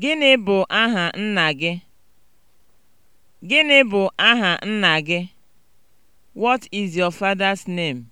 Gịnị bụ aha nna gị? Gịnị bụ aha nna What is your father's name?